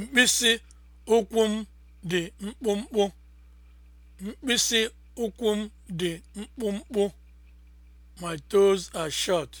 Mkpịsị ụkwụ m dị mkpụmkpụ. Mkpịsị ụkwụ m dị mkpụmkpụ. My toes are short.